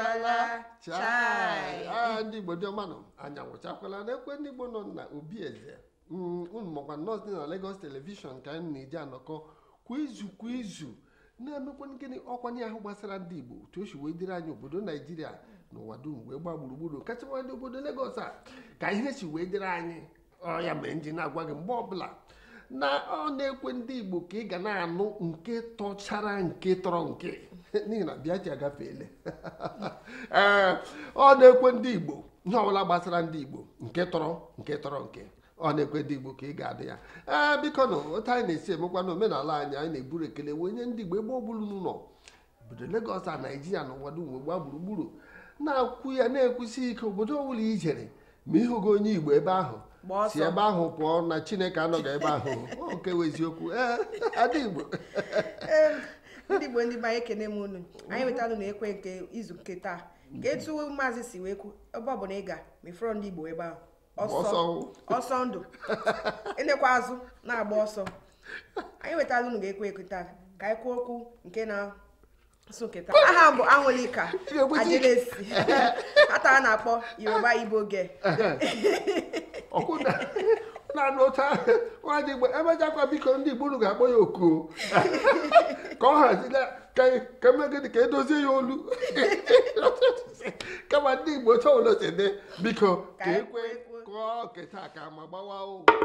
anwụchala chai ah, ndị Igbo dị ọmanụ anyị anwụchakwala n'ekwe ndị Igbo nọ na obi eze mm, unu makwa nọọsụ dị na Lagos telivishọn ka anyị na-eji anọkọ kwa izu kwa izu na-emekwa gịnị ọkwanye ahụ gbasara ndị Igbo otu o si wee dịrị anyị obodo Naijiria n'ụwa dum wee gbaa gburugburu kacha ndị obodo Lagos a ka ihe si wee dịrị anyị ọ ya mere nji na-agwa gị mgbe ọbụla na ọ na-ekwe ndị Igbo ka ị ga na-anụ nke tọchara nke tọrọ nke n'ihi na bịa ji agafeele ee eh, ọ na-ekwe ndị Igbo ihe ọbụla gbasara ndị Igbo nke tọrọ nke tọrọ nke ọ na-ekwe ndị Igbo ka ị ga-adị ya ee eh, biko na otu anyị na-esi emekwa na omenala anyị anyị na-eburu ekele wee nye ndị Igbo ebe ọ n'ụlọ obodo Legọs a Naijiria na ụwa dum gbaa gburugburu na-akwụ ya na-ekwusi ike obodo i ijere ma ịhụgo onye Igbo ebe ahụ si ebe ahụ pụọ na chineke anọghị ebe ahụ oke eziokwu adị igbo ndị igbo ndị be anyị ekene m unu anyị nwetalụ na ekwe nke izu nke taa ka etu maazị si wee kwu ebe ọ bụla ị ga mefọrọ ndị igbo ebe ahụ ọsọ ndụ elekwa azụ na-agba ọsọ anyị nwetalụ unu ga-ekwe ekwe taa ka anyị kwuo okwu nke na asụ nke taa aha m bụ anwụlika ajelesi ata a na-akpọ yoruba igbo oge ọkụda na-anụ ocha igbo emejakwa biko ndị igbo ga-akpọ ya oku ka ọ hazila ka emegịdị ka edozie e ya olu kama ndị igbo chọolosede biko ka ekwe e kụọ keta ka ma gbawa ụgwọ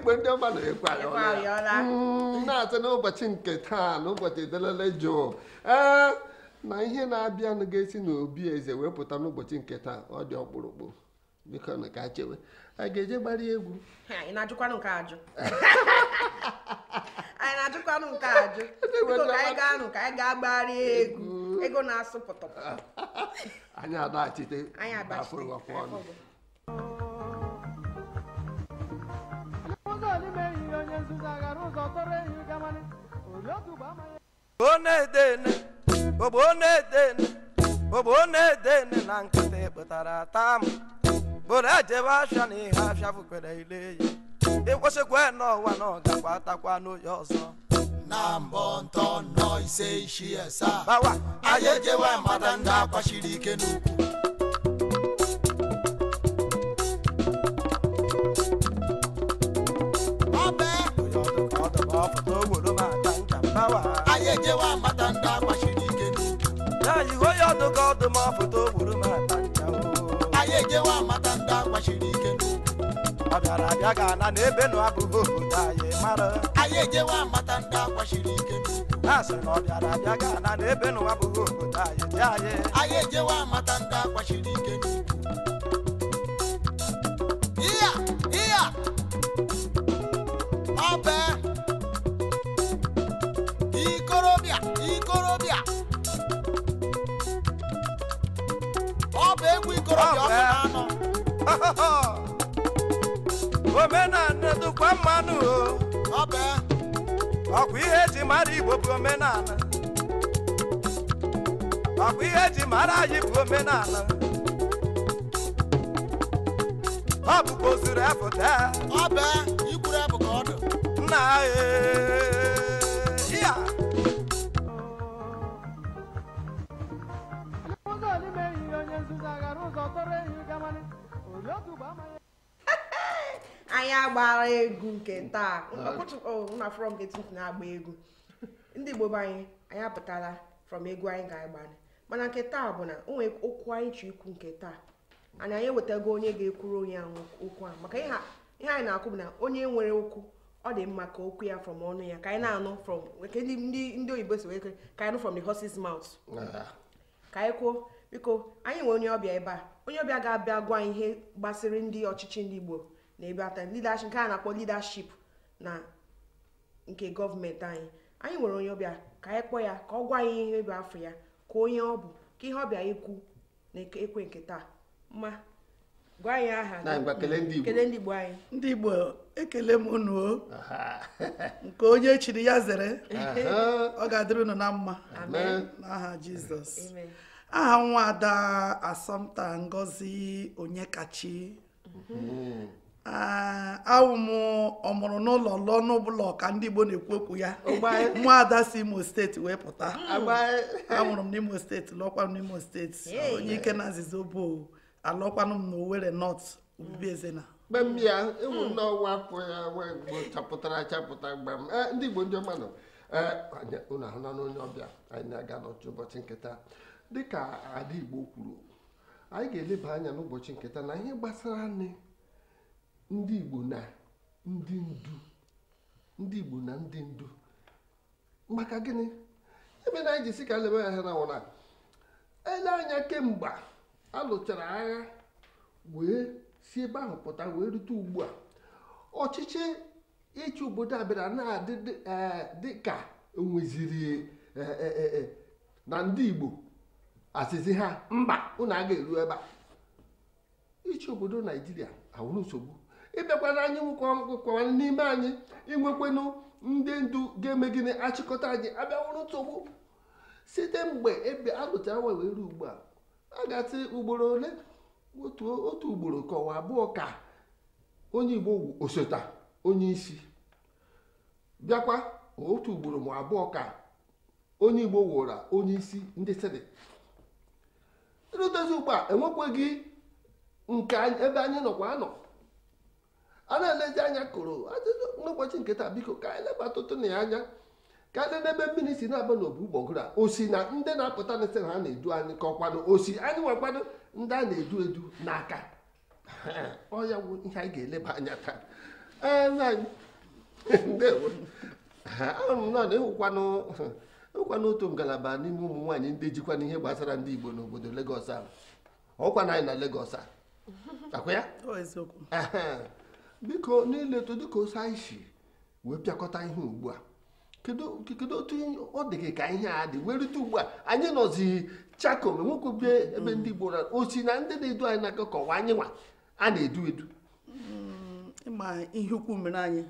igbo ndị ọma na-ekwe ayọla na-atụ n'ụbọchị nke taa na ụbọchị delele jụụ ee na ihe na-abịanụ ga-esi n'obi eze wee pụta n'ụbọchị nke taa ọ dị ọkpụrụkpụ biko na ka chewe a ga-eje gbara egwu anyị na-ajụkwanụ nke ajụ anyị na-ajụkwanụ nke ajụ biko ka anyị gaa nụ ka anyị gaa gbara egwu ego na-asụ pụtọpụtọ anyị agbachite ọnụ ọ na-edene ogbo na-edene na nkịtị kpụtara ata m bụrụ na ihe ya n'ọwa na n'oye ọzọ na mbọ ntọ nọ ise ishi asaa anyị ejewe mmadụ ndị kwachiri ike n'ukwu ọdụmọpụta ogburu m atanja anyị ejewa amata ndị akwachiri ike ọ bịara abịa ga ana na ebe nụ abụghị obodo anyị mara anyị ejewa amata ndị akwachiri ike na-asị na ọ bịara abịa ga ana na ebe nụ abụghị obodo anyị dị anyị anyị ejewa amata ndị akwachiri ike ihe ihe ọ bụ omenala dụkwa mmanụ bụ ihe eji mara igbo bụ Ọ bụ ihe eji mara anyị bụ omenala ọ bụkwa ozuru nna ya anyị agbara egwu nke taa from na-agba egwu ndị Igbo anyị anyị apụtala from egwu anyị ga-agba mana nke taa bụ na onwe okwu anyị chi ikwu nke taa anyị anyị ewetago onye ga-ekwuru onye ahụ okwu ahụ maka ihe anyị na-akwụ bụ na onye nwere okwu ọ dị mma ka okwu ya from ọnụ ya ka anyị na-anụ from ndị oyibo si wee ka anyị nụ from the horse's mouth ah. ka anyị kwuo biko anyị nwere onye ọbịa ebe a onye ọbịa ga-abịa gwa ihe gbasịrị ndị ọchịchị ndị Igbo na ebe ata nke a na-akpọ leadership na nke gọọmenti anyị anyị nwere onye ọbịa ka anyị kpọọ ya ka ọ gwa anyị ihe bụ afọ ya ka onye ọ bụ ka ihe ọbịa ekwu na ekwe nke taa mma gwa anyị aha kele ndị Igbo anyị ndị Igbo ekele m unu nke onye chiri ya zere ọ ga-adịrị unu na mma n'aha Jizọs aha nwa ada asọmta ngozi onyekachi mm-hmm. awụ ah, m ọmụrụ n'ụlọ lụọ n'ụbụla ka ndị Igbo na-ekwu okwu ya nwa ada si Imo steeti wee pụta amụrụ m n'Imo steeti lọkwanụ n'Imo steeti onye ike na nzizo bụ alọkwanụ m n'Owerri North Obibiezena mgbe m bịa ịwụ ndị ọwa afọ ya wee gbo chapụtara achapụta mgbe m eh, ndị Igbo ndị ọma ọmanụ eh, ee unu ahụla n'onye ọbịa anyị na-aga n'otu ụbọchị nketa dịka ada Igbo kwuru anyị ga-eleba anya n'ụbọchị nketa na ihe gbasara anyị ndị Igbo na ndị ndu ndị Igbo na ndị ndu maka gịnị ebe na anyị ji si ka ya na wụna ele anya kemgbe a lụchara agha wee si ebe ahụ pụta wee rute ugbu a ọchịchị ịchị obodo a na-adị dị enweziri eh, e eh, eh, na ndị Igbo asịsị ha mba unu a ga-eru ebe a ichi obodo naijiria awụrụ nsogbu ịbịakwana e anyị nwekwa n'ime anyị inwekwenụ ndị ndu ga-eme gịnị achịkọta anyị abịawụrụ nsogbu site mgbe ebe alụtara nwa wee ugbu a a ga-atị ugboro ole otu ugboro ka abụọ ka onye igbo wu osota onye isi bịakwa otu ugboro ma abụọ ka onye igbo wụra onye isi ndị seneti irudozi ugbu a enwekweghị nke ebe anyị nọkwa anọ a na-elezi anya kụrụ n'ụbọchị nke taa biko ka anyị leba atụtụ na ya anya ka anyị n'ebe mmiri si na-aba n'obu gbọgụrụ a osi na ndị na-apụta na esi na ha na-edu anyị ka ọkwanụ osi anyị nwakwanụ ndị a na-edu edu n'aka ọ ya bụ ihe anyị ga-eleba anya taa ee ndewo m na ịhụkwanụ na n'otu ngalaba n'ime ụmụ nwaanyị ndị jikwa n'ihe gbasara ndị Igbo n'obodo Lagos a ọkwa na anyị na Lagos a akwa ya biko n'iletu dịka osi anyị si wee pịakọta ihe ugbu a kedu otu ọ dị gị ka ihe a dị werite ugbu a anyị nọzi chako ma nwoke bie ebe ndị Igbo osi na ndị na-edu anyị na-akakọwa anyị nwa a na-edu edu mm, ịma ihe ukwu mere anyị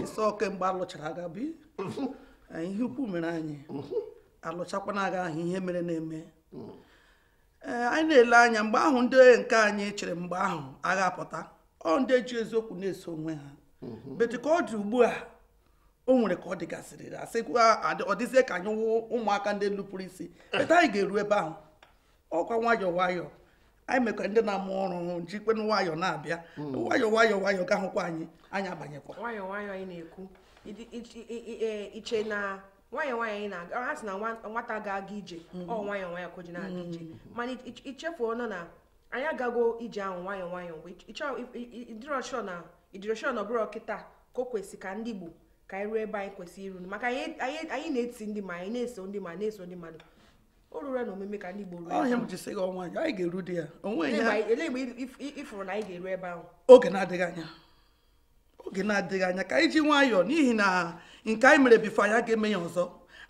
ịsọ kemgbe alụchara aga bi Eh, ihe ukwu mere anyị alụchakwana aga ahụ ihe mere na-eme ee eh, anyị na-ele anya mgbe ahụ ndị nke anyị chere mgbe ahụ agha apụta ọ ndị eji eziokwu na-eso onwe ha beti ka ọ dị ugbu a o nwere ka ọ dịgasịrị asịkwa ọ ka anyị wụ ụmụaka ndị nupụrụ isi eta anyị ga-eru ebe ahụ ọkwa nwayọọ nwayọọ anyị mekwa ndị na-amụ ọrụ jikwe nwayọọ na-abịa nwayọọ nwayọọ nwayọọ ga-ahụkwa anyị anyị abanyekwa nwayọọ nwayọọ anyị na-ekwu iche na nwayọ nwayọ ị na-aga ha sị na nwata ga-aga ije ọ nwayọ nwayọ ka na-aga ije mana ichefuo nọ na anyị agago ije ahụ nwayọ nwayọ mgbe ịdịrọshọ na ịdịrọshọ na ọbụrụ kịta ka o kwesị ka ndị Igbo ka anyị ruo ebe anyị kwesịrị iru maka anyị na-eti ndị ma anyị na-eso ndị ma na-eso ndị mmadụ o ruru na omume ka ndị Igbo ruo ọhịa m ji sị gị ọnwa anyị ga-eru di ya onwe ya ịfụrụ na anyị ga-eru ebe ahụ oge na-adịghị anya oge na-adịghị anya ka anyị ji nwayọọ n'ihi na nke anyị mere bifo anya ga-eme ya ọzọ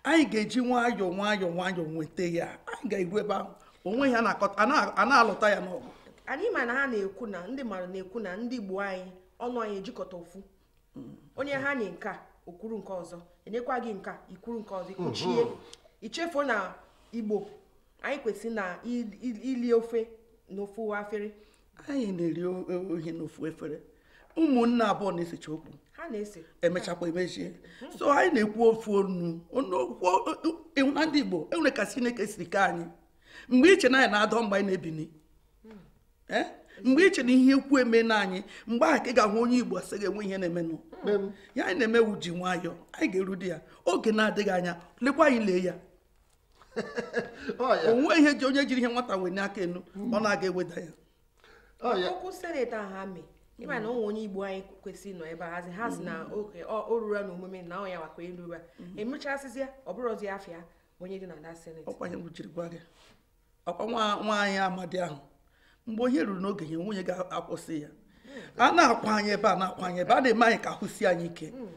anyị ga-eji nwayọọ nwayọọ nwayọọ nweta ya anyị ga-eru ebe ahụ onwe ya a na-alụta ya n'ọgụ anyị ma na ha na-ekwu na ndị mmadụ na-ekwu na ndị Igbo anyị ọnụ anyị ejikọta ofu onye ha nye nke okwuru nke ọzọ enyekwa gị nka ikwuru nke ọzọ ikwuchie mm-hmm. ichefuo na Igbo anyị kwesịrị na ili ofe n'ofu afere anyị na-eri ohi n'ofu efere ụmụnne abụọ na-esecha okwu emechakwa emechie hmm. so anyị na-ekwu ofu onu e, na ndị Igbo enwere ka Chineke siri ka anyị mgbe iche na anyị na-adọ mgbe anyị na-ebini hmm. eh? mgbe iche na ihe ekwu eme na anyị mgbe ahụ ka ị ga-ahụ onye Igbo asị ga-enwe ihe na-emenụ hmm. ya anyị na eme ji nwayọọ anyị ga-eru di ya oge na-adịghị anya lekwa anyị lee ya onwe ihe ji onye jiri ihe nwata wee n'aka enu ọ na-aga eweda ya ịma na ụmụ onye igbo anyị kwesịrị nọ ebe ahazi ha si na mm-hmm. oke o ruru na omume na ọnya wakwa elu ra mm-hmm. emechasịzịa ọ bụrụzi afịa onye dị na da seneti ọkwa nwaanyị amadi ahụ mgbe onye ruru n'oge ya nwunye ga-akwụsị ya hmm. a na-akwa anyị ebe a na-akwa anyị ebe a na-eme anyị ka ahụ anyị ike hmm.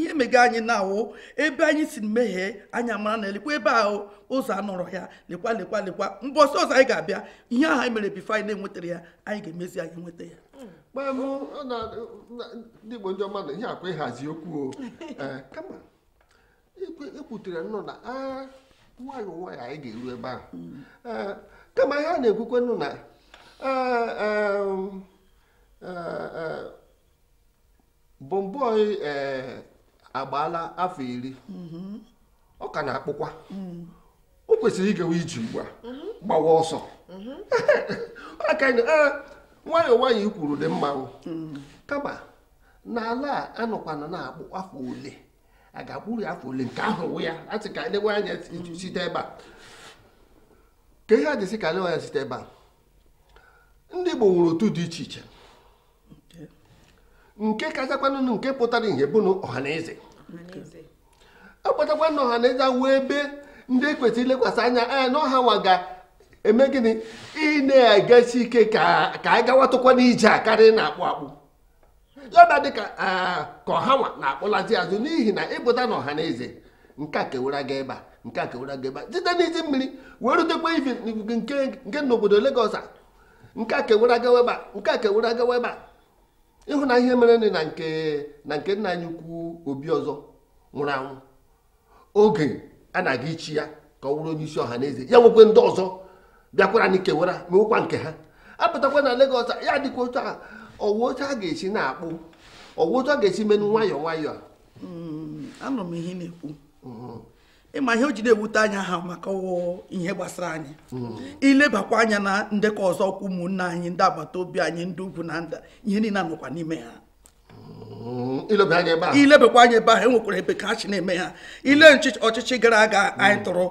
ihe mega anyị na-awụ ebe anyị si meghee anya mara na elekwa ebe ahụ ụzọ anọrọ ya lekwa lekwa lekwa mbọsị ọzọ anyị ga-abịa ihe ahụ anyị mere bifo anyị na-enwetara ya anyị ga-emezi anyị nweta ya ndị Igbo ndị ọma na ihe akwa ịhazi okwu eh, kama ekwutere nnọọ na nwayọ nwayọ anyị ga-eru ebe ahụ hmm. eh, kama ihe a na-ekwukwe nnụ na bọmbọi agbaala afọ iri mm-hmm. ọ ka na-akpụkwa mm. o kwesịrị ịgawa iji mgba mm-hmm. gbawa ọsọ mm-hmm. aka eh, nwayọọ nwayọọ ikwuru dị mmanwụ mm. kama n'ala a anọkwana na-akpụ afọ ole a ga-akpụrụ ya afọ ole nke ahụ ya asị ka e lewe anya site ebe a ka ihe a dịsị ka e lewe anya site ebe a ndị Igbo nwere otu dị iche iche nke kachakwanụ nke pụtara ihe bụ na ọha akpọtakwa na ọha na eze wee ebe ndị e kwesịrị ilekwasị anya anya e, na ọha nwa ga-eme gịnị ị na ike ka a gawatụkwa n'ije a karịa na-akpụ akpụ yaba dịka ka ọha nwa na-akpụlazi azụ n'ihi na ịpụta na ọha na eze nke a kewara gị ebe nke a kewara gị ebe site n'isi mmiri wee rutekwa ife nke n'obodo Lagos a nke a kewara gawa ebe nke a kewara gawa ebe ịhụ na ihe mere na nke na nke nna anyị ukwu obi ọzọ nwụrụ anwụ oge a na-aga ichi ya ka ọ wụrụ onye isi ọha n'eze ya nwekwe ndị ọzọ bịakwara na ikewara mewekwa nke ha apụtakwa na Lagos ya dịkwa otu a ọwụ otu a ga-esi na-akpụ ọwụ otu a ga-esi menụ nwayọọ nwayọọ a hmm, m ihe na-ekwu hmm. ịma ihe o ji na-ewute anya ha maka ihe gbasara anyị ilebakwa anya na ndekọ ọzọ ọkwa ụmụnne anyị ndị agbata obi anyị ndị ugwu na nda ihe niile nọkwa n'ime ha mm, ilebakwa anya ebe ahụ enwekwara ebe ka chi na-eme ha ile ọchịchị gara aga anyị tụrụ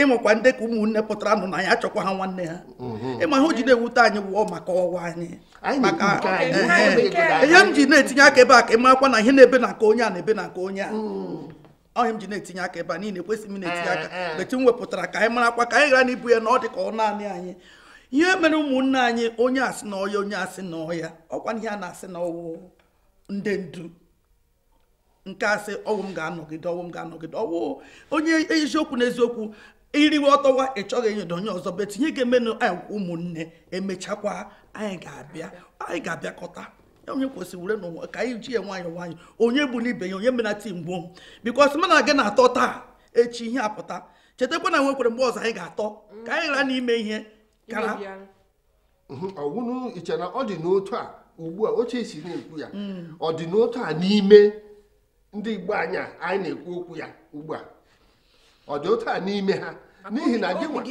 ịmakwa ndị ka ụmụnne pụtara nụ na ya achọkwa ha nwanne ha mm-hmm. ịma ihe o ji na-ewute anyị wụọ maka ọwa anyị maka ihe m ji na-etinye aka ebe a ka ị na ihe na-ebe na aka onye a na-ebe na aka onye a mm. ọhị m ji na-etinye aka ebe a niile ekwesịghị m na-etinye aka beti eh, eh. m wepụtara ka anyị mara akwa ka anyị ghara n'ibu ya na ọ dị ka ọ naanị anyị ihe mere ụmụnne anyị onye asị na ọya onye asị na ọhịa ọkwa ihe a na-asị na ọwụ ndị ndu nke asị ọwụ m ga-anọgide ọwụ m ga-anọgide ọwụ onye eziokwu na eziokwu iriwe ọtọwa ị chọghị ịnyedo onye ọzọ betinye ga-emenụ anyị eh, ụmụnne emechakwa anyị ga-abịa anyị ga-abịakọta onye kwesịrị were n'ụwa ka anyị ji ya nwayọ nwayọ onye bụ n'ibe ya onye menata mgbo bikos mana gị na-atọ taa echi ihe apụta chetakwa na nwekwere mgbe ọzọ anyị ga-atọ ka anyị ghara n'ime ihe kara mhm. ọwụnụ iche na ọ dị n'otu a ugbu a oche esi na-ekwu ya mm. ọ dị n'otu a n'ime ndị igbo anya anyị na-ekwu okwu ya ugbu a ọ dị otu a n'ime ha n'ihi na gị ọ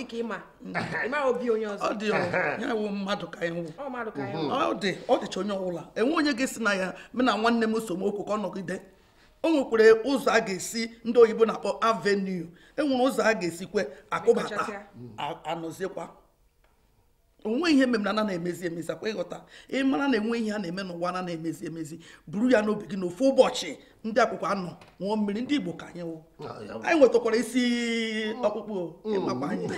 dị mmadụ ka ewu ọ onye ọbụla enwe onye ga-esi na ya m na nwanne m somokwu ka ọ nọgide o nwekwere ụzọ a ga-esi ndị oyibo na-akpọ avenue enwere ụzọ a ga-esikwe akụbata anọziekwa onwe ihe memnana na-emezi emezi akwa ịghọta ịmara na enwe ihe a na-eme n'ụwa na emezi emezi buru ya n'obi gị n'ofu ụbọchị ndị akwụkwọ anọ ṅụọ mmiri ndị Igbo ka anyị ah, anyị nwetakwara isi ọkpụkpụ ịmakwa mm. anyị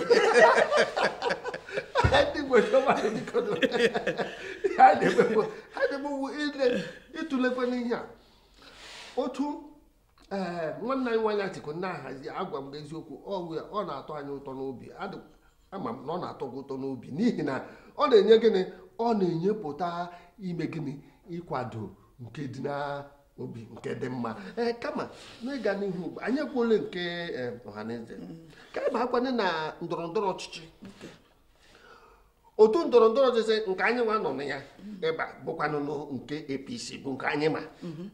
ịtụlekwa n'ihe a otu eh, nwanne anyị nwanyị atiko na-ahazi agwa m eziokwu ọ na-atọ anyị ụtọ n'obi ama m na ọ na-atọ gị ụtọ n'obi n'ihi na ọ na-enye gịnị ọ na-enyepụta ime gịnị ịkwado nke dị n'obi nke dị mma ee eh, kama n'ịga n'ihu anyị ekwuole nke eh, ọhaneze ka anyị ma-akwanye na ndọrọ ndọrọ ọchịchị otu ndọrọ ndọrọ ọchịchị nke anyị nwa nọ na ya ebe a bụkwanụ nke APC bụ nke anyị ma mm-hmm.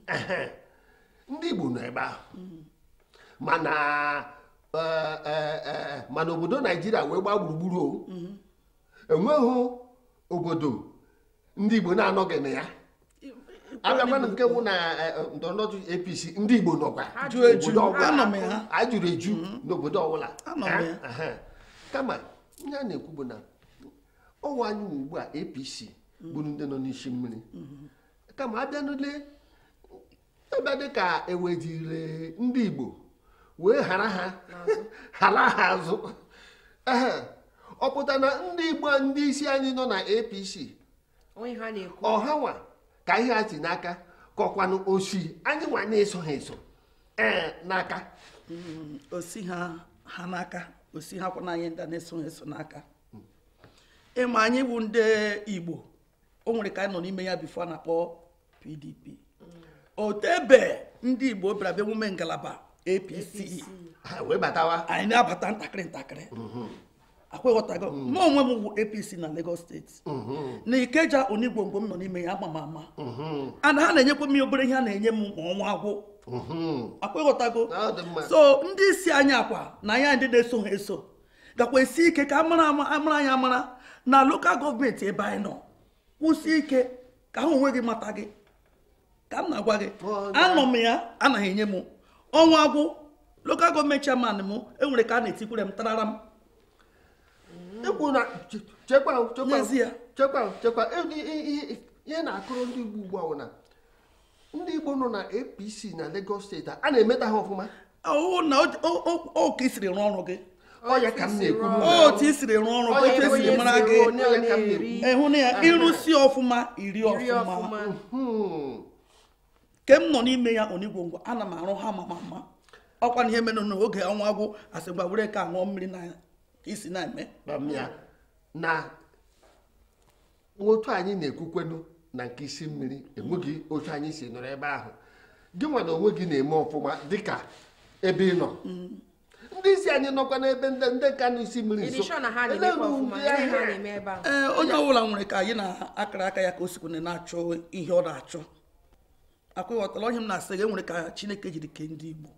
ndị Igbo nọ ebe ahụ mm-hmm. mana Eh, eh, eh, mana obodo naijiria wee gbaa gburugburu enweghị obodo ndị igbo na-anọghị na ya abịakwana nke mụ na ndọrọndọrọ apc ndị igbo nọkwa ajụrụ eju n'obodo ọbụla kama ihe a na-ekwu bụ na ọnwa anyị ugbu a apc bụrụ ndị nọ n'isi mmiri kama abịanụle ebe ka ewejire ndị igbo wee ghara ha ghara ha azụ ọ pụta na ndị igbo ndị isi anyị nọ na apc ọhanwa ka ihe a si n'aka kọkwanụ osi anyị nwa na-eso ha eso e, n'aka mm, osi ha ha n'aka osi ha kwana anyị ndị na-eso ha eso n'aka hmm. ịma anyị bụ ndị igbo o nwere ka anyị nọ n'ime ya bifo na-akpọ pdp hmm. otebe ndị igbo bịara emume ngalaba apc e. e. ah, anyị na-abata ntakịrị ntakịrị mm-hmm. akweghọtago m mm-hmm. onwe m bụ apc na lagos steeti mm-hmm. na ikeja onigwongwo m nọ n'ime ya ama m ama ana ha na-enyekwa m obere ihe a na-enye m ma ọnwa agwụ akweghọtago so ndị isi anyị akwa na ya ndị na-eso ha eso gakwa esi ike ka amara amara anyị amara na lokal gọọmenti ebe anyị nọ kwụsị ike ka ha onwe gị mata gị ka m na-agwa gị anọ m ya anaghị enye m ọnwa gwụ lokal gọọmenti chairman m enwere ka a na-etikwure m tarara m n'ezie ihe na-akụrụ ndị Igbo ugbu a na ndị Igbo nọ na APC na Lagos steeti a na-emeta ha ọfụma ọwụ na oke isiri rụọ ọrụ gị otu siri rụọ ọrụ gị otu esiri mara gị ịhụ na ya ịrụsi ọfụma iri ọfụma mhmm. ke m nọ n'ime ya onigwo ngwa ana m arụ ha mama mma ọkwa na ihe mere n'oge ọnwa agwụ asị gwa were ka ṅụọ mmiri na isi na-eme na otu anyị na-ekwukwenu na nke isi mmiri enweghị otu anyị si nọrọ ebe ahụ gị nwa na onwe gị na-eme ọfụma dịka ebe ị nọ mm. ndị isi anyị nọkwa n'ebe ndị nka na isi mmiri nso ee onye ọbụla nwere ka anyị na-akara aka ya ka o sikwana na-achọ ihe ọ na-achọ akwa ịghọtala ọhịa m na-asị gị enwere ka chineke jiri kee ndị igbo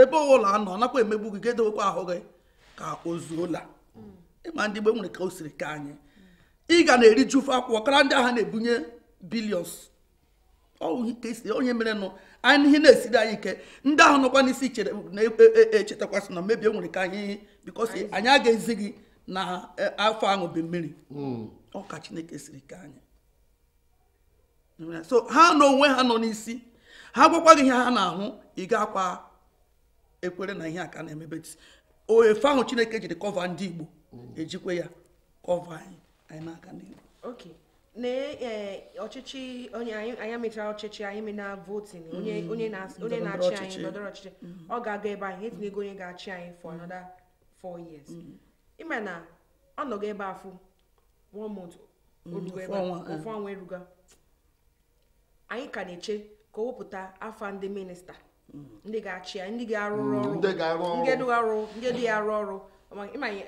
ebe ụlọ anọ nakwa emegbu gị gedewekwa ahụ gị ka ozuo la mm. ịma ndị igbo enwere ka o siri ka anyị ị ga na eri ofe akwụkwọ kara ndị agha na-ebunye bilions onye mere nụ anyị ihe na-esiri anyị ike ndị ahụ nọkwa n'isi na-echetakwasị na mmebi e, e, e, enwere ka anyị bikọsi anyị aga ezi gị na afọ aṅụbe mmiri mm. ọka chineke siri ka anyị so ha na onwe ha nọ n'isi ha gwakwa ihe ha na-ahụ ị ga-akwa ekwere na ihe a ka na-emebeti oefe ahụ chineke jiri kọva ndị igbo mm. ejikwe ya kọva anyị anyị n'aka ndị igbo ok na e, ọchịchị onye anyị mechara ọchịchị anyị mena votin mm. onye na-achị anyị ndọrọ ọchịchị mm. ọ ga-aga ebe anyị etinye ego onye ga-achị anyị for another four years ịma na ọ nọgo ebe afọ afụ one month ofu ọnwa eh. eruga anyị ka na-eche ka o wepụta afa ndị minista mm. ndị ga-achị ya ndị ga arụ mm, ọrụ ndị dị arụ ọrụ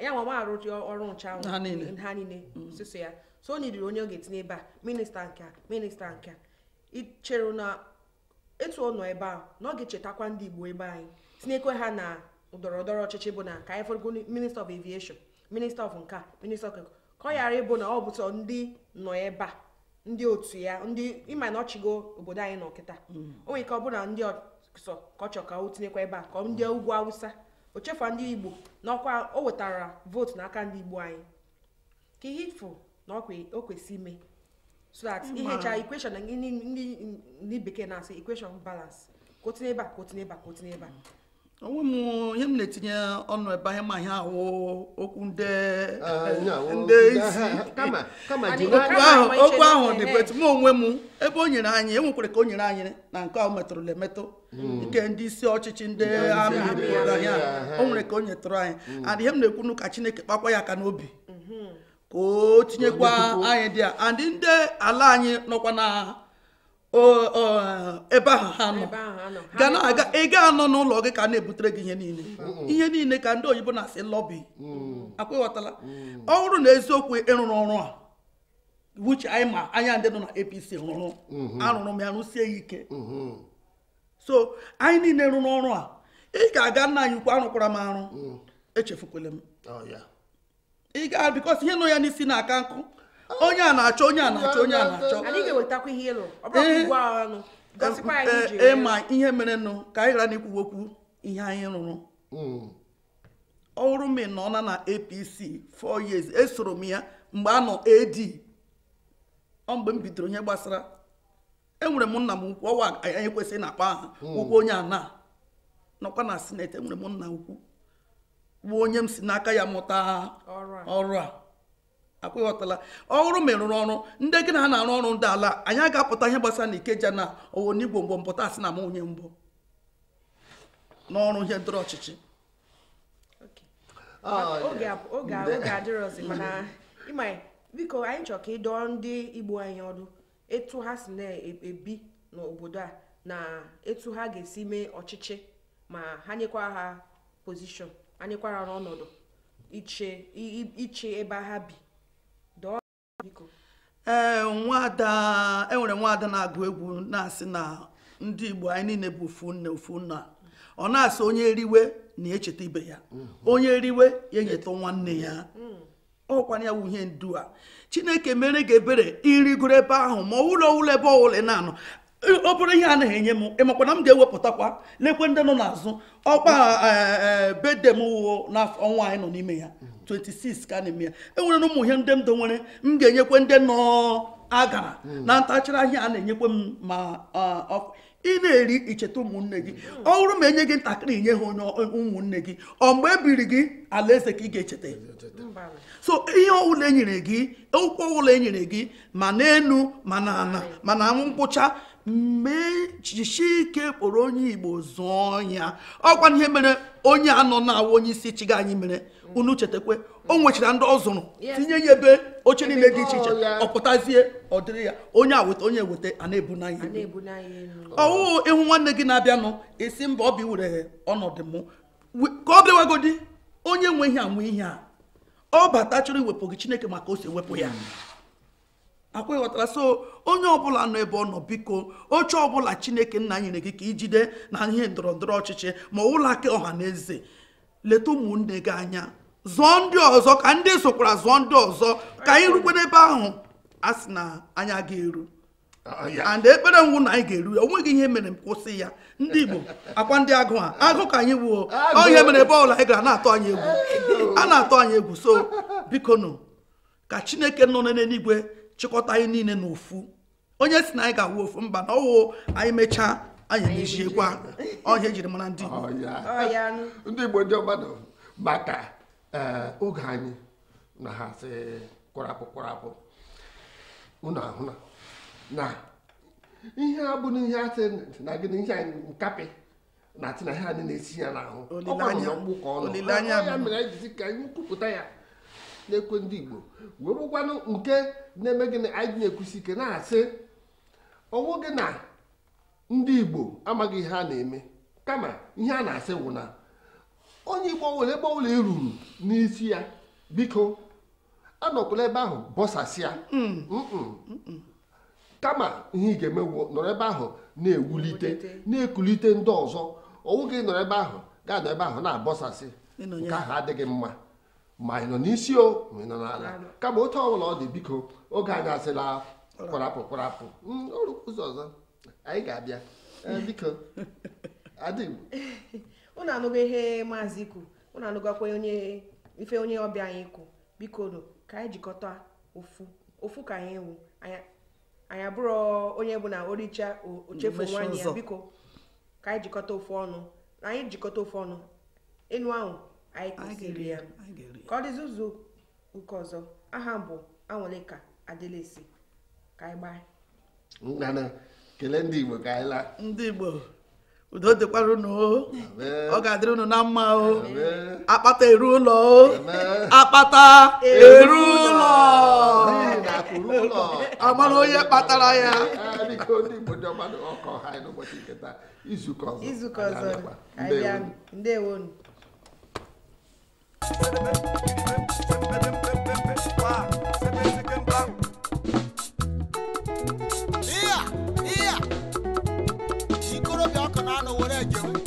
ya nwa arụ ọrụ ncha ahụ ha niile mm. sịsọ ya so o nidiri onye oge ga ebe a minista nke a minista nke a ichere na etu ọ nọ ebe a na ọ ga-echetakwa ndị Igbo ebe anyị tinyekwe ha na ndọrọ ndọrọ ọchịchị bụ na ka anyị fọrọgo minista of aviation minista of nka minista of ka ọ ịbụ na ọ bụtọ ndị nọ ebe a ndị otu ya ndị ịma na ọchịgo obodo anyị nọ kịta mm. o nwere ike ọ bụrụ na ndị ọsọ ka ọ chọ ka o tinyekwa ebe a ka ndị mm. ugwu awụsa o ndị igbo na ọkwa o wetara vootu n'aka ndị igbo anyị ka ihe ifụ na o kwesị ime so that ihecha equation ndị bekee na-asị ekweshon balance ka o tinye ka ka ebe a onwe m ihe m na-etinye ọnụ ebe ahịa ma ihe ahụ okwu nde ah, isi okwu ahụ dị betu m onwe m ebe o nyere anyị enwekwara ka o nyere anyị na nke ahụ metụrụla emetụ nke hmm. ndị isi ọchịchị ndị amị ahịa o nwere ka o nyetụrụ anyị hmm. and ihe m na-ekwu ka Chineke kpakwa ya aka n'obi mhm. ka o tinyekwa anyị dị a and ndị ala anyị nọkwa na ebe ahụ ha nọ ga na aga ị ga anọ n'ụlọ gị ka a na-ebutere gị ihe niile ihe niile ka ndị oyibo na-asị lọbi mm. akwa ịghọtala mm. ọ bụrụ na eziokwu ịrụrụ ọrụ a wuche anyị ma anya ndị nọ na APC rụrụ mm-hmm. arụrụ m ya rụsie ya ike mm-hmm. so anyị niile rụrụ ọrụ a ị ga-aga nna anyị ukwu arụkwara m arụ mm. echefukwala m oh, ị ga bikọs ihe nọ ya n'isi na-aka nkụ onye a na-achọ onye a na-achọ onye a na-achọ ịma ihe eh, nụ eh, eh, ka anyị ghara n'ikwu okwu ihe anyị rụrụ ọrụ m nọ na apc 4 years esoro m ya mgbe a nọ ad ọ mgbe m bidoro ihe gbasara enwere m nna m ukwu ọwa anyị kwesịrị na akpa aha ukwu onye ana nọkwa na sineti enwere m nna ukwu bụ onye m si n'aka ya mụta ọrụ a akwụghọtala ọrụ merụrụ ọrụ ndị gị na ha na-arụ ọrụ ndị ala anyị aga-apụta ihe gbasara na ikeja na owo n'igbo mgbe mpụta asị na m onye mbụ n'ọrụ ihe ndọrọ ọchịchị ah, oge mana biko anyị chọrọ ka ịdọọ ndị igbo anyị ọdụ etu ha si na-ebi n'obodo a na etu ha ga-esi mee ọchịchị ma ha nyekwa ha pozishọn ha nyekwa ha n'ọnọdụ iche ebe ha bi ee nwada enwere nwaada na-agụ egwu na-asị na ndị igbo anyị niile bụ ofu nne ofu nna ọ na-asị onye riwe na echeta ibe ya mhm. onye riwe ya enyeta nwanne ya mhm. ọkwana ya wuhie ndu a chineke mere gị ebere irigoro ebe ahụ ma ụlọ ụlọ ebe ọwụla na-anọ ọ bụrụ ihe a na-enye m ịmakwa na m ga-ewepụtakwa lekwe ndị nọ n'azụ ọkpa e, e, e, bedem n'ọnwa anyị nọ n'ime ya mhm. 26 ka a na-eme ya enwere na ụmụ ihe ndị ndụ nwere m ga-enyekwe ndị nọ agara na ntachara ahịa a na-enyekwe m ma ị na-eri icheta ụmụnne gị ọ bụrụ ma enye gị ntakịrị nye ha onye ụmụnne gị ọ mgbe e biri gị alaeze ka ị ga-echeta so ihe ọbụla enyere gị ụkwụ ọbụla enyere gị ma n'enu ma na ana ma na ngwụcha mee ike kpọrọ onye igbo zụọ ya ọkwa ihe mere onye a nọ na-awụ onye isi chiga anyị mere unu chetakwe o nwechara ndị ọ zụrụ tinye ya ebe oche niile dị iche iche ọpụtazie ọ dịrị ya onye aweta onye weta a na-ebu n'anya ọwụ ịhụ nwanne gị na-abịanụ esi mba ọ bi were ọnọdụ mụ ka ọ bịawagodi onye nweghị anwe ihe a ọ bata chọrọ iwepụ gị chineke maka o si ewepụ ya akwa ịghọtara so onye ọbụla nọ ebe ọ nọ biko oche ọbụla chineke nna nyere gị ka ijide na ihe ndọrọndọrọ ọchịchị ma ụlọ aka ọha na eze leta ụmụnne gị anya zụọ ndị ọzọ ka ndị sokwara zụọ ndị ọzọ ka anyị rukwe n'ebe ahụ a sị na anya ga-eru and ekpere ngwụ na anyị ga-eru ya onweghị ihe mere kwụsị ya ndị igbo akwa ndị agụ a agụ ka anyị wuo ọ ihe mere ebe ọbụla anyị gara na-atụ anyị egwu a na atọ anyị egwu so biko nụ ka chineke nọ n'eluigwe chịkọta anyị niile n'ofu onye si na anyị ga-awụ ofu mba na ọwụ anyị mechaa anyị emechiekwa ọhịa ejiri mara ndị ndị Igbo ndị ọgbadọ maka eh, oge anyị na ha sị kwarapụ kwarapụ unu ahụna na ihe a bụ n'ihe asị na gị na ihe anyị nkapị na atị na ihe anyị na-esi ya n'ahụ ọ gbara ya mgbu ka ọnụ ya mere anyị jizi ka anyị kwupụta ya na-ekwe ndị Igbo wee bụkwanụ nke na-eme gịnị anyị na-ekwusi ike na-asị ọnwụ gị na ndị Igbo amaghị ihe a na-eme kama ihe a na-asị wụ na onye Igbo nwere ebe ọbụla iruru e n'isi ya biko anọkwala ebe ahụ bọsasịa mm. kama ihe ị ga-eme nọrọ ebe ahụ na-ewulite na-ekulite ndị ọzọ ọnwụ gị nọrọ ebe ahụ gaa nọ ebe ahụ na-abọsasị nke ahụ adịghị mma ma ị nọ n'isi o ma ị nọ n'ala kama otu ọbụla ọ dị biko oge anyị asịla kwarapụ kwarapụ mm, ụzọ ọzọ anyị ga-abịa e, biko adịm ụnụ anụgo ihe maazị ikwu ụnụ anụgakwa onye ife onye ọbịa anyị ikwu biko do ka anyị jikọta ofu ofu ka anyị ewu anyị abụrụ onye bụ na oricha ochefu nwaanyị ya biko ka anyị jikọta ofu ọnụ anyị jikọta ofu ọnụ enu ahụ anyị kụziri ya ka ọ dịzi ụzọ nke ọzọ aha bụ anwụlịka adịlesi ka anyị gbaa ngana kelee ndị igbo ka anyị laa ndị igbo udo dịkwara unu o ọ ga-adịrị unu na mma o akpata eru ụlọ o akpata eru ụlọ amara onye kpatara ya ah, izukọ ọzọ ndewonu Yeah, yeah. She could have done a word.